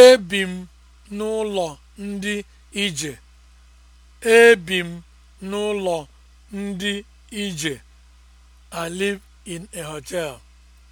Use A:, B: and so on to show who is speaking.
A: Ebi m n'ụlọ ndị ìjè. Ebi m n'ụlọ ndị ije I live in
B: a hotel.